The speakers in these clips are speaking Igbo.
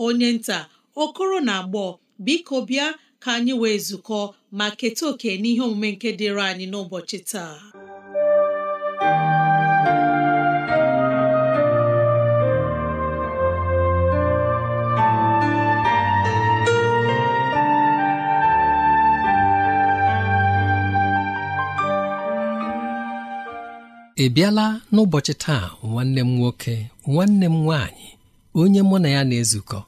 onye nta okoro na agbọ biko bịa ka anyị wee zukọ ma keta oke n'ihe omume nke dịịrị anyị n'ụbọchị taa ị bịala n'ụbọchị taa nwanne m nwoke nwanne m nwaanyị onye mụ na ya na-ezukọ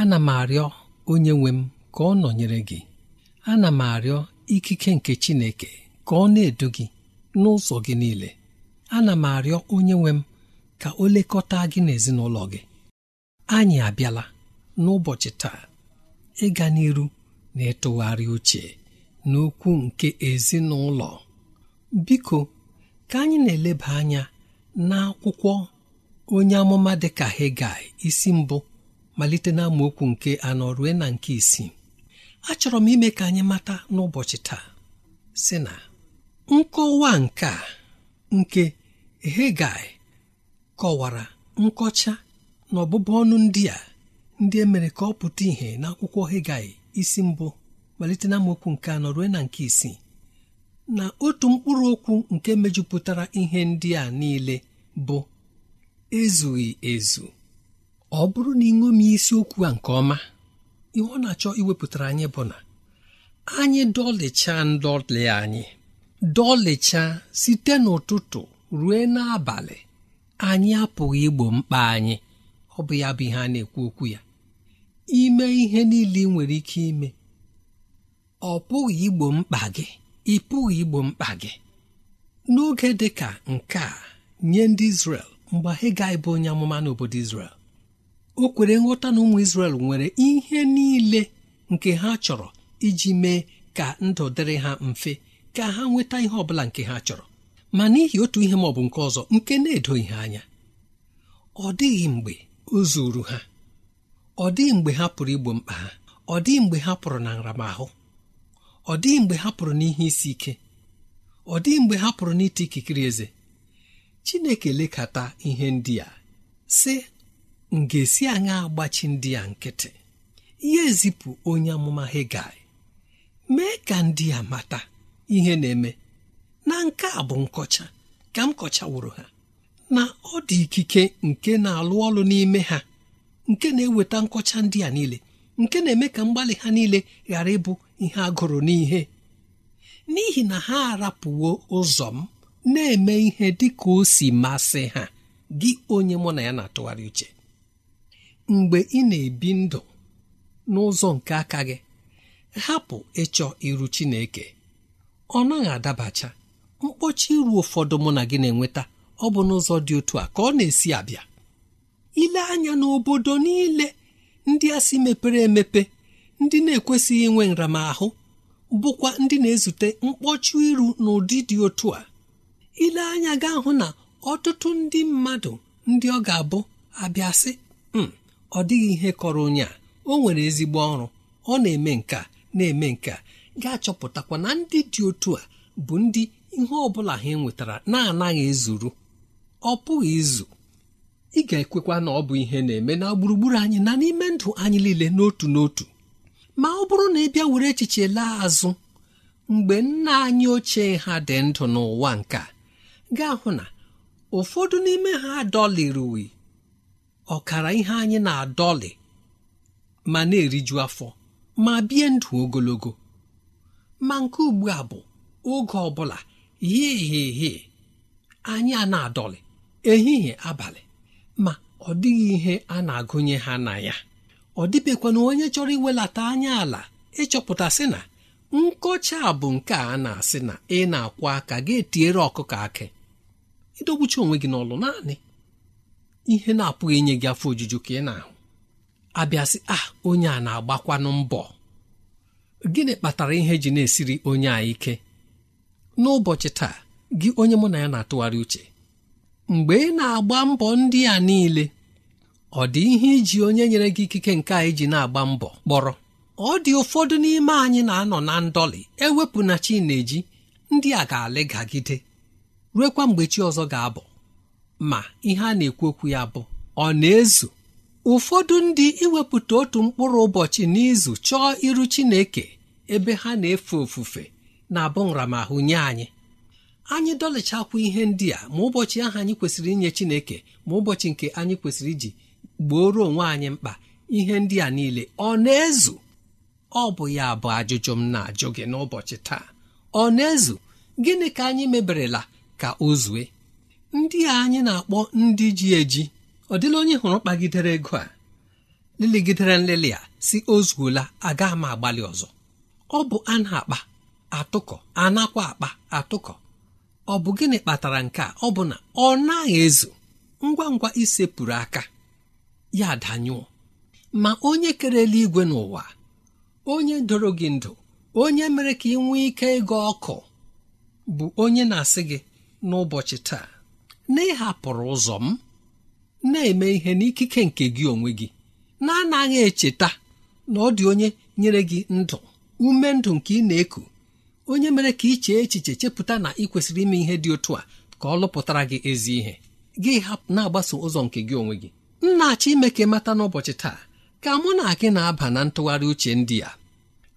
ana m arịọ onye nwe m ka ọ nọnyere gị ana m arịọ ikike nke Chineke ka ọ na-edu gị n'ụzọ gị niile ana m arịọ onye nwe m ka o lekọta gị n'ezinụlọ gị anyị abịala n'ụbọchị taa ịga n'iru na ịtụgharị uche n'okwu nke ezinụlọ biko ka anyị na-eleba anya n'akwụkwọ onye amụma dịka Hegai isi mbụ malite na nke anọ rue na nke isii achọrọ m ime ka anyị mata n'ụbọchị taa si na nkọwa nke a nke Hegai kọwara nkọcha na ọbụbụ ọnụ ndị a ndị e mere ka ọ pụta ìhè n'akwụkwọ Hegai isi mbụ malite na amaokwu nke anọ na nke isii na otu mkpụrụ okwu nke mejupụtara ihe ndị a niile bụ ezughị ezu ọ bụrụ na ị isiokwu a nke ọma ihe ọ na-achọ iwepụtara anyị bụ na anyị dọlịcha ndọlị anyị dọlịcha site n'ụtụtụ ruo n'abalị anyị apụghị igbo mkpa anyị ọ bụ ya bụ ihe a na-ekwu okwu ya ime ihe niile ị nwere ike ime ọ pụghị igbo mkpa gị ị pụghị igbo mkpa gị n'oge dị ka nke a nye ndị Izrel mgbe Hegai bụ onye amụma n'obodo Izrel o kwere nghọta na ụmụ Izrel nwere ihe niile nke ha chọrọ iji mee ka ndụ dịrị ha mfe ka ha nweta ihe ọ bụla nke ha chọrọ ma n'ihi otu ihe ma ọ bụ nke ọzọ nke na edo ihe anya ọ dịghị mgbe o zuru ha ọ dịghị mgbe ha pụrụ igbo mkpa ha ọ dịghị mgbe ha pụrụ na nramahụ ọ dịghị mgbe ha pụrụ n'ihe isi ike ọ dịghị mgbe ha pụrụ n'ite ikikere eze chineke lekata ihe ndị a sị ngesi anya agbachi ndị a nkịtị ya ezipụ onye amụma hegai mee ka ndị a mata ihe na-eme na nke a bụ nkọcha ka m kọchawụrụ ha na ọ dị ikike nke na-alụ ọlụ n'ime ha nke na-eweta nkọcha ndị a niile nke na-eme ka mgbalị ha niile ghara ịbụ ihe agụrụ n'ihe n'ihi na ha arapụwo ụzọ m na-eme ihe dị ka o si masị ha gị onye mụ na ya na-atụgharị uche mgbe ị na-ebi ndụ n'ụzọ nke aka gị hapụ ịchọ iru Chineke ọ naghị adabacha mkpọchi iru ụfọdụ mụ na gị na-enweta ọ bụ n'ụzọ dị otu a ka ọ na-esi abịa ile anya n'obodo niile ndị a si mepere emepe ndị na-ekwesịghị inwe nramahụ bụkwa ndị na-ezute mkpọchi iru n'ụdị dị otu a ile anya gaa hụ na ọtụtụ ndị mmadụ ndị ọ ga-abụ abịasị m hmm, ọ dịghị ihe kọrọ onye a o nwere ezigbo ọrụ ọ na-eme nka na-eme nka ga-achọpụtakwa na ndị dị otu a bụ ndị ihe ọ bụla ha nwetara na-anaghị ezuru ọ pụghị izu ị ga-ekwekwa na ọ bụ ihe na-eme na gburugburu anyị na n'ime ndụ anyị niile n'otu n'otu ma ọ bụrụ na ị bịa were echiche laa azụ mgbe nna anyị ochie ha dị ndụ n'ụwa a. ga-ahụ na ụfọdụ n'ime ha adọlịrị ọkara ihe anyị na-adọlị ma na-eriju afọ ma bie ndụ ogologo ma nke ugbu a bụ oge ọ bụla hihie anyị a na-adọlị ehihie abalị ma ọ dịghị ihe a na-agụnye ha na ya ọ dịbekwana onye chọrọ iwelata anya ala ịchọpụta sị na nkọcha bụ nke a na-asị na ị na akwa aka ga-etiere ọkụkọ akị idogbuchi onwe gị n'ọlụ naanị ihe na-apụghị inye gị afọ ojuju ka ị na-ahụ abịasị a ah, onye a na-agbakwanụ mbọ gịnị kpatara ihe ji na-esiri onye a ike n'ụbọchị taa gị onye mụ na ya na-atụgharị uche mgbe ị na-agba mbọ ndị a niile ọ dị ihe iji onye nyere gị ikike nke a iji na-agba mbọ kpọrọ ọ dị ụfọdụ n'ime anyị na-anọ na ndọlị ewepụ na-eji ndị a ga-alịgagide ruekwa mgbe chi ọzọ ga-abụ ma ihe a na-ekwu okwu ya bụ ọ na-ezu ụfọdụ ndị iwepụta otu mkpụrụ ụbọchị n'izu chọọ iru Chineke ebe ha na-efe ofufe na-abụ nramahụ nye anyị anyị dọlịchakwa ihe ndị a ma ụbọchị ahụ anyị kwesịrị inye Chineke ma ụbọchị nke anyị kwesịrị iji gboro onwe anyị mkpa ihe ndị a niile ọ na-ezu ọ bụ ya bụ ajụjụ m na-ajụ gị n'ụbọchị taa ọ na-ezu gịnị ka anyị meberela ka o zue ndị a anyị na-akpọ ndị ji eji ọ dịla onye hụrụ kpagidere ego a leligidere nlelị a si o zuola aga ma agbalị ọzọ ọ bụ a na-akpa atụkọ a nakwa akpa atụkọ ọ bụ gịnị kpatara nke a ọ bụ na ọ naghị ezu ngwa ngwa isepụrụ aka ya danyụọ ma onye kere eluigwe n'ụwa onye doro gị ndụ onye mere ka ị nwee ike ịga ọkụ bụ onye na-asị gị n'ụbọchị taa na ịhapụrụ ụzọ m na-eme ihe n'ikike nke gị onwe gị na-anaghị echeta na ọ dị onye nyere gị ndụ ume ndụ nke ị na-eku onye mere ka ị chee echiche chepụta na ị kwesịrị ime ihe dị otu a ka ọ lụpụtara gị ezi ihe gị hapụ na-agbaso ụzọ nke gị onwe gị nna achọ ime ka mata n'ụbọchị taa ka mụ na gị na-aba na ntụgharị uche ndị a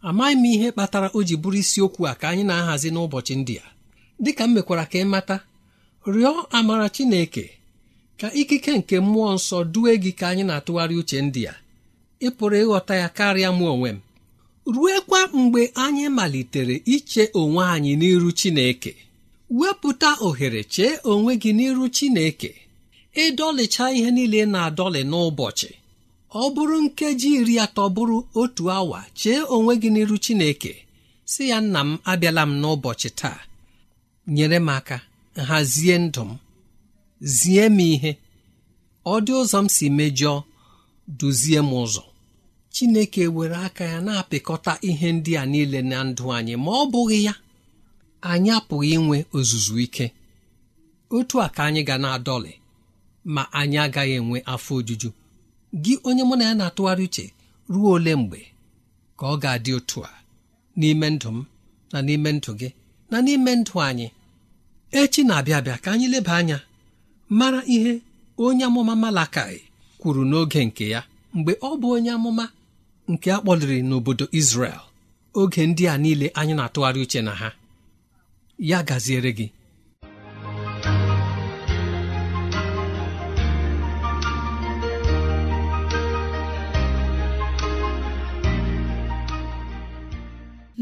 amaghị m ihe kpatara o ji bụrụ isiokwu a ka anyị na-ahazi n'ụbọchị ndị a dịka m mekwara ka ị mata rịọ amara Chineke ka ikike nke mmụọ nsọ due gị ka anyị na-atụgharị uche ndị a ị pụrụ ịghọta ya karịa mụ onwe m ruekwa mgbe anyị malitere iche onwe anyị n'iru Chineke wepụta ohere chee onwe gị n'iru Chineke ịdọlịcha ihe niile na-adọlị n'ụbọchị ọ bụrụ nkeji iri atọ bụrụ otu awa chee onwe gị n'iru Chineke si ya nna m abịala m n'ụbọchị taa nyere m aka hazie ndụ m zie m ihe ọ dị ụzọ m si mejọọ duzie m ụzọ chineke were aka ya na-apịkọta ihe ndị a niile na ndụ anyị ma ọ bụghị ya anyị apụghị inwe ozuzu ike otu a ka anyị ga na-adọlị ma anyị agaghị enwe afọ ojuju gị onye mụ na ya na-atụgharị uche ruo ole mgbe ka ọ ga-adị otu a n'ime ndụ m na n'ime ndụ gị na n'ime ndụ anyị echi na-abịa abịa ka anyị leba anya mara ihe onye amụma Malakai kwuru n'oge nke ya mgbe ọ bụ onye amụma nke a kpọliri n'obodo Izrel oge ndị a niile anyị na-atụgharị uche na ha ya gaziere gị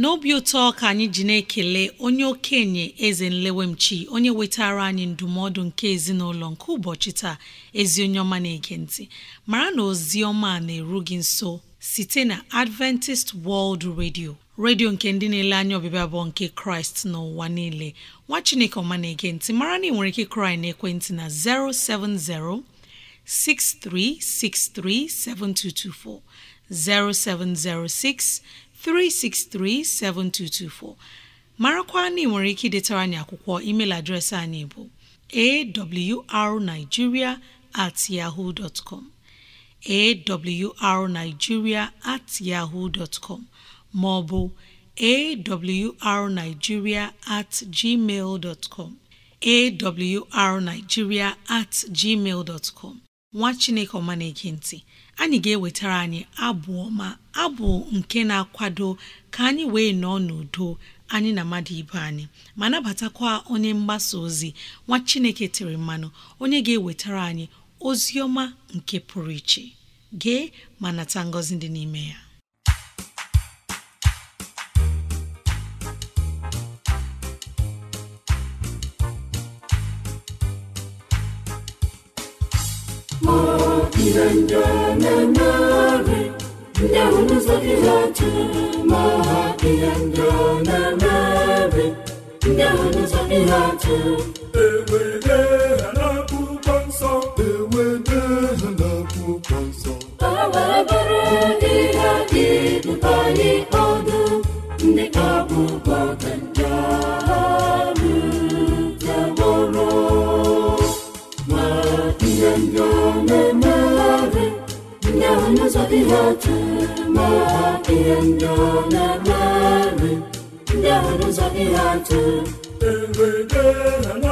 n'obi ụtọ ka anyị ji na-ekele onye okenye eze nlewemchi onye wetara anyị ndụmọdụ nke ezinụlọ nke ụbọchị taa ezi onye ọma na-ege mara na ozi ọma na-eru gị nso site na Adventist World Radio redio nke ndị na-ele anya ọbịbịa bụ nke kraịst n'ụwa niile nwa chineke ọma na-ege mara na ị nwere ike kraị na ekwentị na 070 6363 7224 0706 363-7224 marakwa na nwere ike idetara anyị akwụkwọ email adreesị anyị bụ awrnigeria at yahoo dot awrnigeria at yahoo dot maọbụ awrnigeria at gmail at gmail nwa chineke ọma anyị ga-ewetara anyị abụ ọma abụ nke na-akwado ka anyị wee nọọ n'udo anyị na mmadụ ibe anyị ma nabatakwa onye mgbasa ozi nwa Chineke tiri mmanụ onye ga-ewetara anyị ozi ọma nke pụrụ iche gee ma nata ngọzi dị n'ime ya ihendememere ndị ahụ n'ụzọ gị ha ihe ndị ọ na-emere ndị ahụ ewede na-akwụkwọ nsọ ewede na-akwụkwọ nsọ ihe ihe otu ma ihe ndị ọ na-eme ndị ahụ n'ụzọ ihe atụ na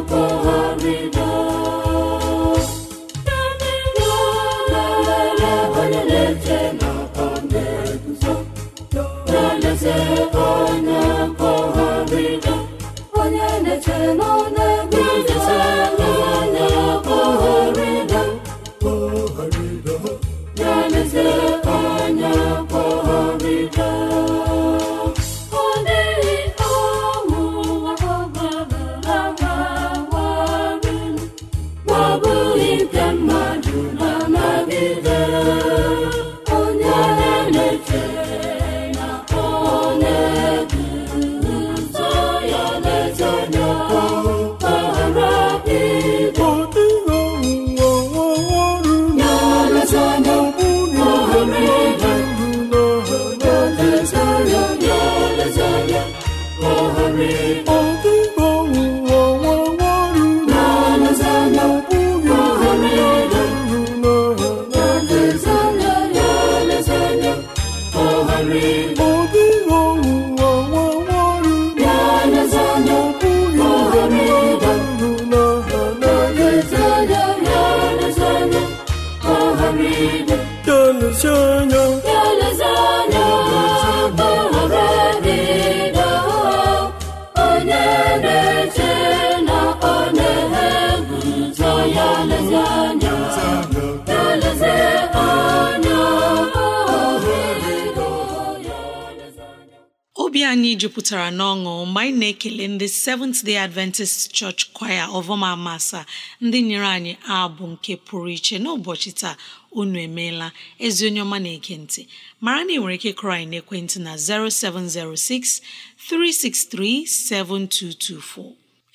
anyị jupụtara n'ọṅụ mgbe anyị na-ekele ndị Seventh Day Adventist Church Choir ọvọma masa ndị nyere anyị abụ nke pụrụ iche n'ụbọchị taa unu emeela ezi onye ọma na-ege ntị mara na ị nwere ike kụrụ anyị n'ekwentị na 0706 363 7224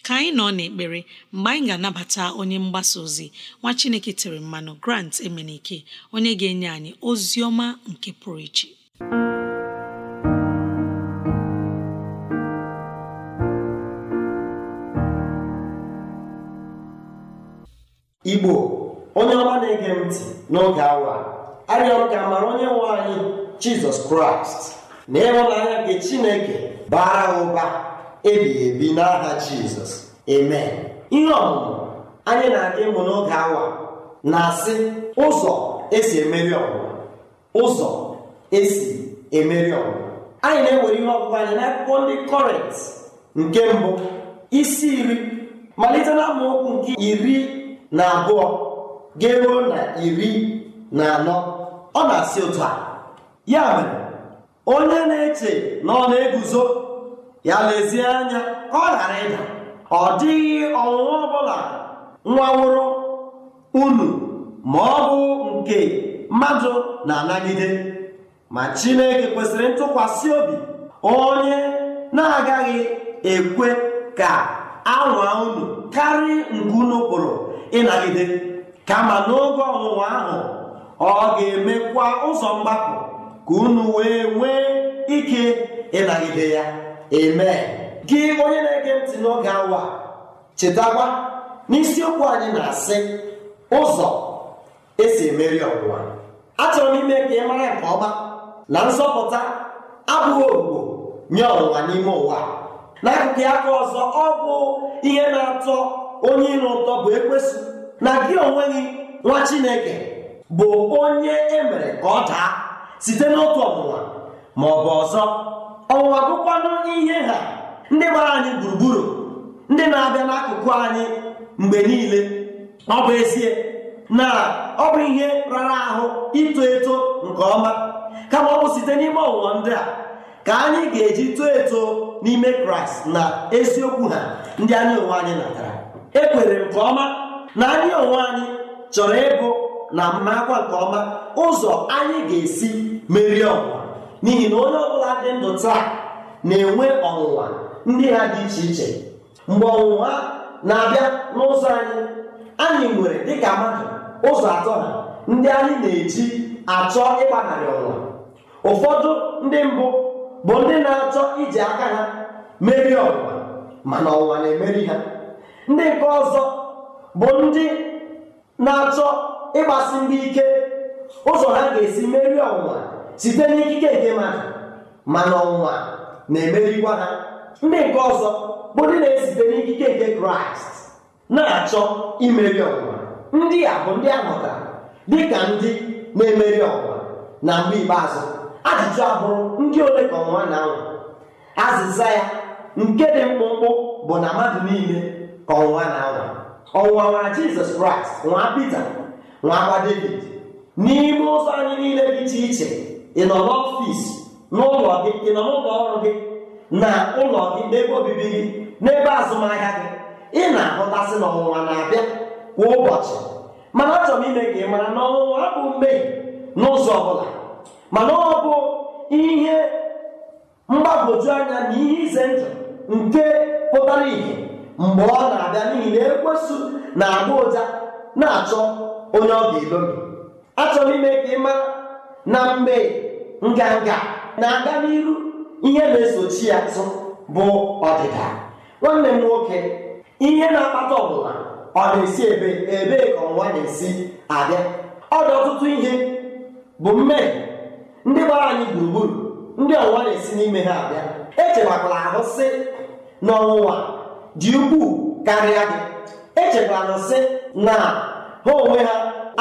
ka anyị nọ n'ekpere mgbe anyị ga-anabata onye mgbasa ozi nwa Chineke tere mmanụ Grant Emenike onye ga-enye anyị ozi ọma nke pụrụ iche igbo onye ọma na-ege ntị n'oge awa arịọrọ ka amara onye nwe anyị jizọs kraịst na ịhụnanya nke chineke bara ụba ebighị ebi n'aha jizọs eme ihe ọmụmụ anyị na-aga ịmụ n'oge awa na-asị ụzọ esi emeri ọgwụgwa ụzọ esi emeri ọgwụgwa anyị na-ewere ihe ọgụgụ anyị n'akwụkwọ ndị kọrent nke mbụ isi iri malite na nke iri na abụọ ga na iri na anọ ọ na-asị otu a ya mere onye na-eche na ọ na-eguzo ya lezie anya ka ọ ghara ịda ọ dịghị ọnwụnwa ọbụla nwa nwụrụ unu ma ọ bụ nke mmadụ na-anagide ma Chineke kwesịrị ntụkwasị obi onye na-agaghị ekwe ka anwa unu karịa nke unu kpụrụ ịnagide kama n'oge ọnwụnwa ahụ ọ ga-emekwa ụzọ mgbapụ ka unu wee nwee ike ịnagide ya eme gị onye na-ege ntị n'oge awa chetakwa n'isiokwu anyị na-asị ụzọ esi emeri ọnwụnwa achọrọ m ime ka ị mara nke ọma na nzọpụta abụghị ogbugbo nye ọnwụnwa n'ime ụwa n'akụkụ aka ọzọ ọ bụ ihe na-atọ onye ire ụtọ bụ ekwesị na gị onwe gị nwa chineke bụ onye e mere ka ọ daa site n'otu ọnwụnwa ma ọ bụ ọzọ ọnwụnwa bụkwanụ ihe ha ndị gbara anyị gburugburu ndị na-abịa n'akụkụ anyị mgbe niile ọ bụ ezie na ọ bụ ihe rara ahụ ito eto nke ọma kama ọ bụ site n'ime ọnwụnwa ndị a ka anyị ga-eji too eto n'ime kraịst na eziokwu ha ndị anyị onwe anyị natara ekwere nke ọma na anyị onwe anyị chọrọ ịgụ na mmakwa nke ọma ụzọ anyị ga-esi merie ọnwụnwa n'ihi na onye ọbụla dị ndụ taa na-enwe ọnwụnwa ndị ha dị iche iche mgbe ọnwụnwa na-abịa n'ụzọ anyị anyị nwere dịka mmadụ ụzọ atọ ha ndị anyị na-eji achọ ịgbanarị ọnwụnwa ụfọdụ ndị mbụ bụ ndị na-achọ iji aka ha merie ọnwụnwa mana ọnwụnwa na-emeri ha ndị nke ọzọ bụ ndị na-achọ ịgbasi ndị ike ụzọ ha ga-esi merie ọnwụnwa site n'ikike nke mmadụ mana ọnwụnwa na-emerikwa ha ndị nke ọzọ bụ ndị na-esite n'ikike nke kraịst na-achọ imeri ọnwụnwa ndị a bụ ndị a dị ka ndị na-emeri ọnwa na mgbe ikpeazụ ajụjụ abụrụ ndị ole ka ọnwa na-anwụ azịza ya nke dị mkpụmkpụ bụ na mmadụ niile kọwaa na anwa ọnwụwa nwa jizọs kraịst nwa pita nwa agba Devid, n'ime ụzọ anyị niile dị iche iche ị nọ n'ọfịs n'ụlọ gị ị nọ n'ụlọ ọrụ gị na ụlọ gị n'ebe obibi gị n'ebe azụmahịa gị ị na-ahụtasị na na-abịa kwa ụbọchị mana achọrọ m ime ka ị mara na ọnwụnwa abụ mmehie n'ụzọ ọ bụla mana ọ bụ ihe mgbagwoju anya na ihe ize ndụ nke pụtara ìhè mgbe ọ na-abịa n'ihi na ekwesu na-agba ụja na-achọ onye ọ ga-elobi achọrọ ime ka ịma na mgbe nganga na-aga n'iru ihe na-esochi ya tụ bụ ọdịda nwanne m nwoke ihe na-akpata ọbụla ọ na-esi ebe ebee ka ọnwa na-esi abịa ọ dị ọtụtụ ihe bụ mmehie ndị gbara anyị gburugburu ndị ọnwa na-esi n'ime ha abịa echebakwala ahụ sị n'ọnwụnwa dị ukwuu karịa gị echekwala sị na ha onwe ha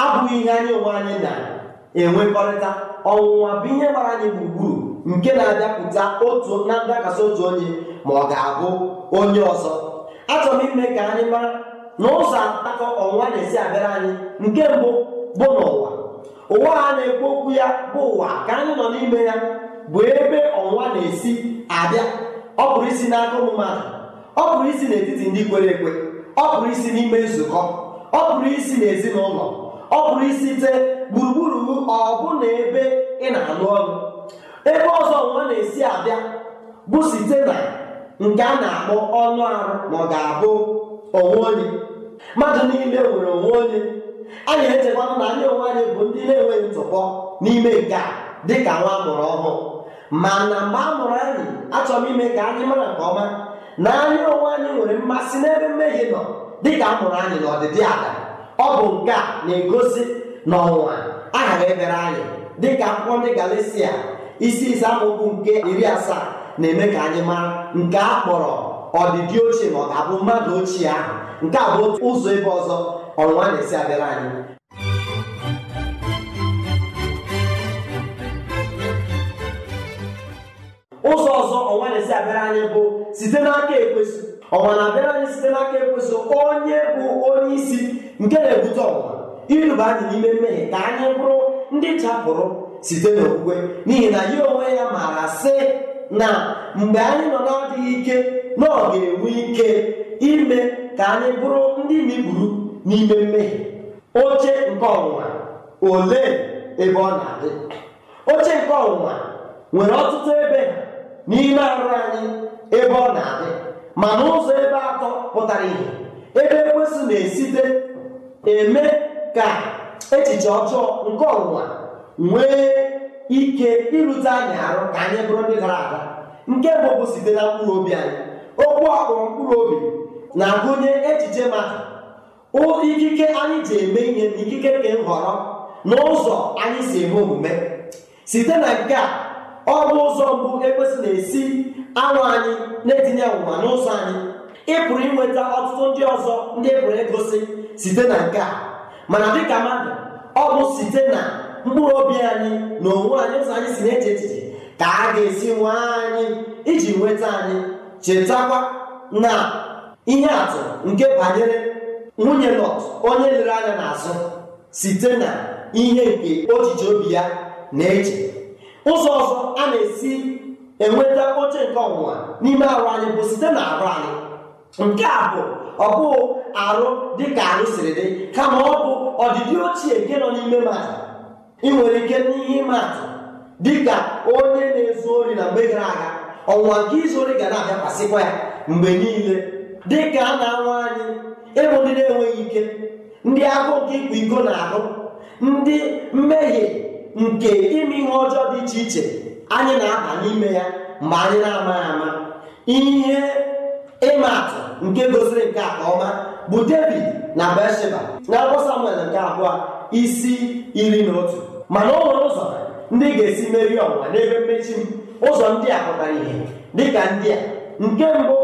abụghị ihe anyị onwe anyị na-enwekọrịta ọnwụnwa bụ ihe gbara anyị gburugburu nke na-abịapụta otu na ndakasị otu onye ma ọ ga-abụ onye ọzọ achọrọ m ime ka anyị mara na ụzọ akọ ọnwụnwa na-esi abịara anyị nke mbụ bụ n'ụwa ụwa a na-ekwu okwu ya bụ ụwa ka anyị nọ n'ime ya bụ ebe ọnwụnwa na-esi abịa ọ pụrụ isi n'aka ụmụ ọ pụrụ isi n'etiti ndị kwere ekwe ọ pụrụ isi n'ime nzukọ ọ pụrụ isi n'ezinụlọ ọ pụrụ isite gburugburu ọbụna ebe ị na-alụ ọrụ ebe ọzọ nwa na-esi abịa bụ site na nke a na-akpọ ọnụ arụ ma ọ ga-abụ onwe onye mmadụ niile nwere onwe onye anyị echekwana na anyị onwe anyị bụ ndị na-enweghị ntụpọ n'ime nke a ka nwa mụrụ ọhụụ mana mgbe a mụrụ anyị achọrọ ime ka anyị mara nke ọma na anya onwe anyị nwere mmasị n'ebe mmehie nọ dịka a mụrụ anyị na ọdịdị aga ọ bụ nke a na-egosi na ọnwụnwa aghara ebere anyị dịka akwụkwọ ndị Galisia isi ise amaokwu nke iri asaa na-eme ka anyị mara nke a kpọrọ ọdịdị ochie ma ọ ga-abụ mmadụ ochie ahụ nke a bụ otu ụzọ ebe ọzọ ọnwa na-esi abịara anyị ụzọ ọzọ ọnwa na-esi abịara anyị bụ site n'aka ekwesị ọnwa na-abịara anyị site n'aka ekwesị onye bụ onye isi nke na-ebute ọnwa iruba anyị n'ime mmehie ka anyị bụrụ ndị chapụrụ site n'okwukwe n'ihi na ya onwe ya maara sị na mgbe anyị nọ na-adịghị ike na ọ ga-enwe ike ime ka anyị bụrụ ndị na-eburu n'ime mmehie oche nke ọnwụnwa ole ebe ọ na-adị oche nke ọnwụnwa nwere ọtụtụ ebe n'ime arụ anyị ebe ọ na-adị ma n'ụzọ ebe atọ pụtara ihe ebe ekwesị na-esite eme ka echiche ọjọọ nke ọnwụnwa nwee ike irute anyị arụ ka anyị bụrụ ndị gara aga. nke mbụ bụ site na mkpụrụ obi anyị okwu akpụrụ mkpụrụ obi na-agụnye echiche mmadụ ikike anyị ji eme ihe na ikike nke nhọrọ na ụzọ anyị si eme omume site na nke a ọ bụ ụzọ mbụ ekwesị na-esi anụ anyị na-etinye ọnwụnwa n'ụzọ anyị ị pụrụ inweta ọtụtụ ndị ọzọ ndị e pụrụ egosi site na nke a mana dịka mmadụ ọ bụ site na mkpụrụ obi anyị na onwe anyị ụzọ anyị si na-eche echiche ka a ga-esi nwee anyị iji nweta anyị chetakwa na ihe atụ nke banyere nwunye Lọt onye lere anya n'azụ site na ihe nke ojiji obi ya na-eche ụzọ ọzọ a na-esi enweta oche nke ọnwụnwa n'ime arụ anyị bụ site na arụ anyị nke a bụ ọ bụghị arụ dịka arụ siri dị kama ọ bụ ọdịdị ochie nke nọ n'ime mmadụ ị nwere ike n'ihe ịma atụ dịka onye na-ezu ori na mgbe gara aga ọnwụnwa nke izu ori ga na-abịakwasịkwa ya mgbe niile Dị ka a na-anwa anyị ịbụ ndị na-enweghị ike ndị agụ nke ịkwa iko na arụ ndị mmehie nke ime ihe ọjọọ dị iche iche anyị na-aba n'ime ya mgbe anyị na-amaghị ama ihe ịma atụ nke gosiri nke a ọma bụ David na Besheba na akwụkwọ Samuel nke abụọ isi iri na otu mana o nwere ụzọ ndị ga-esi merie ọnwa n'ebe mmechi m ụzọ ndị a pụtara ihe dịka ndị a nke mbụ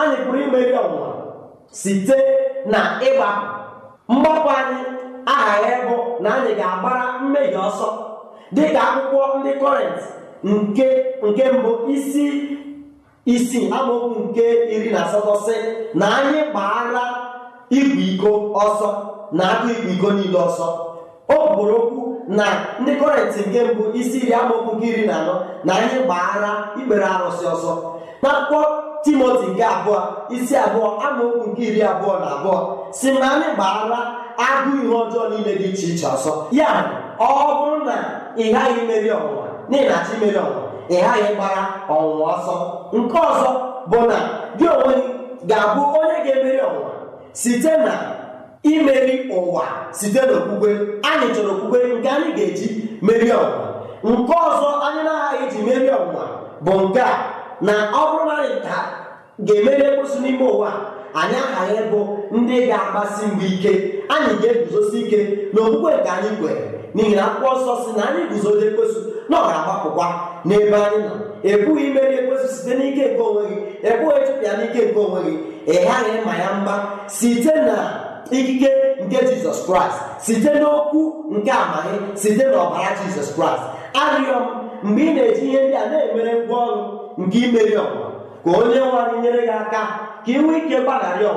anyị pụrụ imeri ọnwụnwa site na ịgbapụ mgbapụ anyị aghaghị ịbụ na anyị ga-agbara mmehie ọsọ dịka akwụkwọ ndị kọrent nke nke mbụ isi isi amaokwu nke iri na asatọ sị na anyị kpaara igwe iko ọsọ na akụ igwe iko niile ọsọ o kwuru okwu na ndị kọrentị nke mbụ isi iri amaokwu nke iri na anọ na anyị gbaara ikpere arụsị ọsọ na akwụkwọ timoti nke abụọ isi abụọ amaokwu nke iri abụọ na abụọ si na anyị gbaara agụ ihe ọjọọ niile dị iche iche ọsọ ya ọ bụrụ na ị ghaghị imeri ọwụwa n'ihi imeri chi ị ghaghị gbara ọnwụnwa ọsọ nke ọzọ bụ na gị onwe ga-abụ onye ga-emeri ọwụwa site na imeri ụwa site n'okpukpe anyị chọrọ okwukwe nke anyị ga-eji meri ọnwụnwa nke ọzọ anyị na-aghaghị iji meri ọnwụwa bụ nke a na ọ bụrụ na anyị ga-emeri ekposi n'ime ụwa anyị aghaghị bụ ndị ga-agbasi mgbe ike anyị ga-eguzosi ike na okpukpe nke anyị kwere n'ihi na akpụkpọ nsọ si na anyị guzodo ekwesu na ọ ga-agbapụkwa n'ebe anyị nọ ebughị imeri ekwesu site n'ike nke onwe gị ebughị chụpịa n'ike nke onwe gị ị ịma ya mba site na ikike nke jizọs kraịst site n'okwu nke amaghe site n'ọbara jizọs kraịst arịọ m mgbe ị na-eji ihe ndị a na-emere ngwa ọrụ nke imeri ọnwụnwa ka onye nwanyị nyere gị aka ka inwee ike ike gbaghara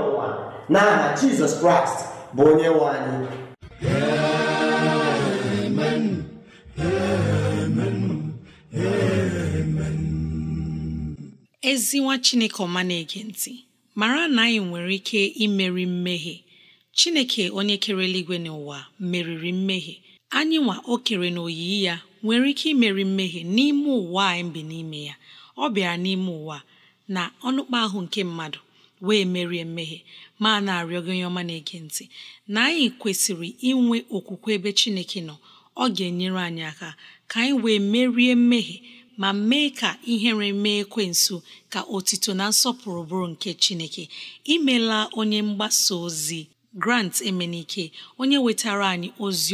na n'aha jizọs kraịst bụ onye nwe anyị ezi nwa chineke ọma na-ege ntị mara na anyị nwere ike imeri mmehie chineke onye kere eluigwe n'ụwa meriri mmehie anyị nwa o kere na oyiyi ya nwere ike imeri mmehie n'ime ụwa anyị bi n'ime ya ọ bịara n'ime ụwa na ọnụkpa ahụ nke mmadụ wee merie mmehie ma na-arịọ gị onye ọma na-ege ntị na anyị kwesịrị inwe okwukwe ebe chineke nọ ọ ga-enyere anyị aka ka anyị wee merie mmehie ma mee ka ihere mee nso ka otito na nsọpụrụ bụrụ nke chineke imela onye mgbasa ozi grant emenike onye wetara anyị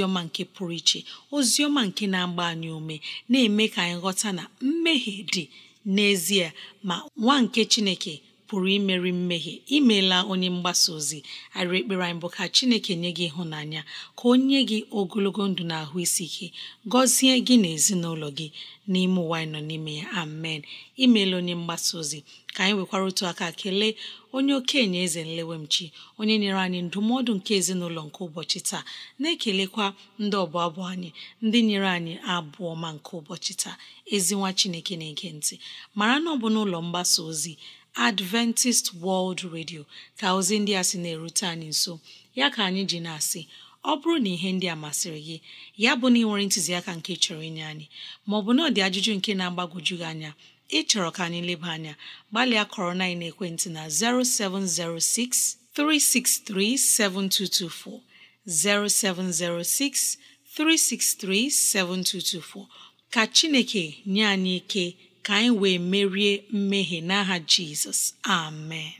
ọma nke pụrụ iche ozi ọma nke na-agba anyị ume na-eme ka anyị ghọta na mmehie dị n'ezie ma nwa nke chineke pụrụ imeri mmehie imeela onye mgbasa ozi arị ekpere anyị bụ ka chineke nye gị ịhụnanya ka o nye gị ogologo ndụ na ahụ isi ike gọzie gị na ezinụlọ gị n'ime ụwa anyị nọ n'ime ya amen imeela onye mgbasa ozi ka anyị nwekwara otu aka kelee onye okenye eze nlewemchi onye nyere anyị ndụmọdụ nke ezinụlọ nke ụbọchị taa na-ekelekwa ndị ọbụ abụ anyị ndị nyere anyị abụ ọma nke ụbọchị taa ezinwa chineke na-ege ntị mara na ọ bụ n'ụlọ mgbasa ozi adventist world radio ka ozi ndị a sị na-erute anyị nso ya ka anyị ji na-asị ọ bụrụ na ihe ndị a masịrị gị ya bụ na ị nwere ntụziaka nke chọrọ inye anyị maọbụ na ọ dị ajụjụ nke na-agbagwoju gị anya ịchọrọ ka anyị leba anya gbalịa kọrọ na ekwentị na 0706 363 7224 0706 363 7224 ka Chineke nye anyị ike ka anyị wee merie mmehie n'aha jizọs amen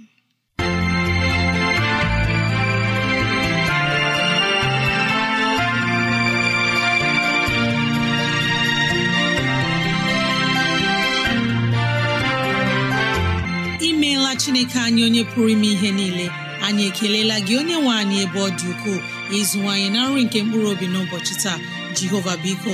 imeela chineke anyị onye pụrụ ime ihe niile anyị ekelela gị onye nwe anyị ebe ọ dị ukwuu ịzụwanyị na nri nke mkpụrụ obi n'ụbọchị taa jehova biko